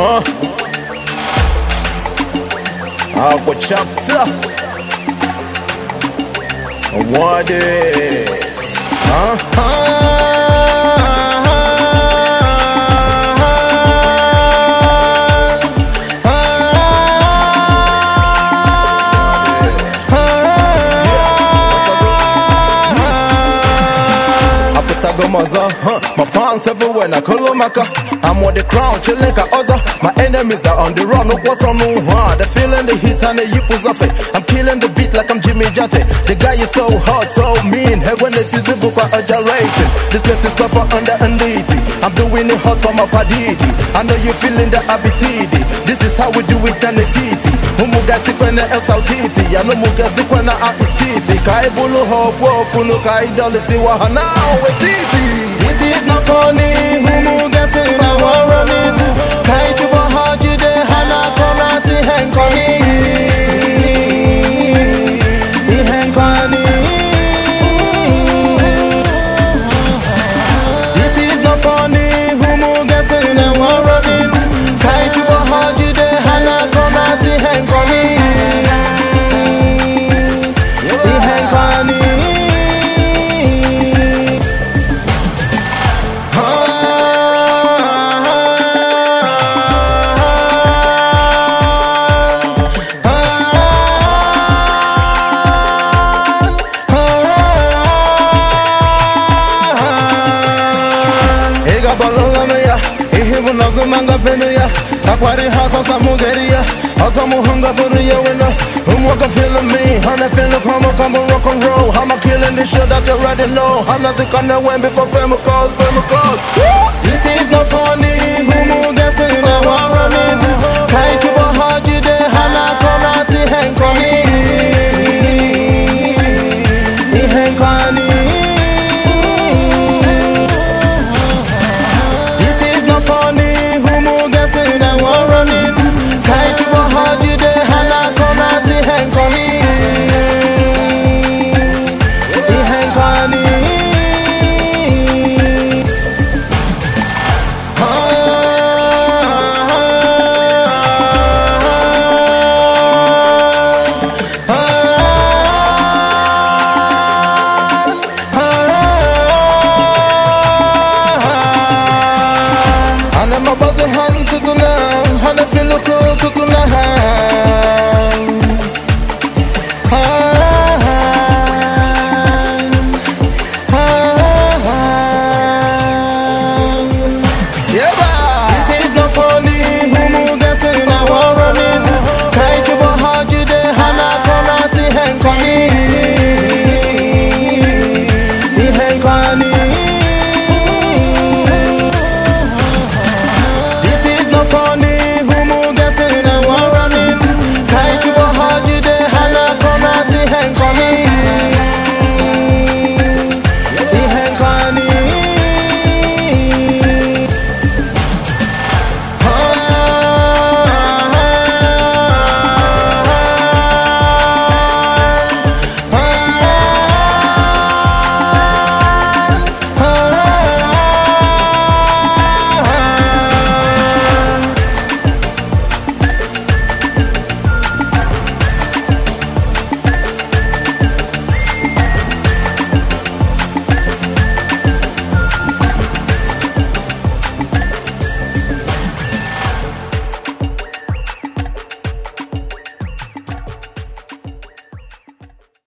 huh? I'll go chapter. I Ata go mọzọ My fans everywhere na Kolomaka I'm on the crown chilling ka ọzọ My enemies are on the run kwọsọ n'ụhụ They feeling the heat and the yipu zafe I'm killing the beat like I'm Jimmy Jate The guy is so hot, so mean Heaven it is oja ojalating This place is tough for under unity I'm doing it hot for my padidi I know you feeling the abitidi This is how we do it and the titi umugasikwana esaltiti ya numugasikwana aistiti ka anyị bụrụ ha ofu ofu nu ka anyị dolisiwa ha na wetiti balolama ya ihe bụ na azụmanga fenu ya takwari ha sasa mugeri ya ya wena ụmụaka feeling ha na feeling kwamo kwamo rock and roll ha na zikana wen before fame calls